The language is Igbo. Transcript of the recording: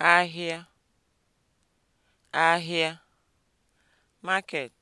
ahịa ahịa (market)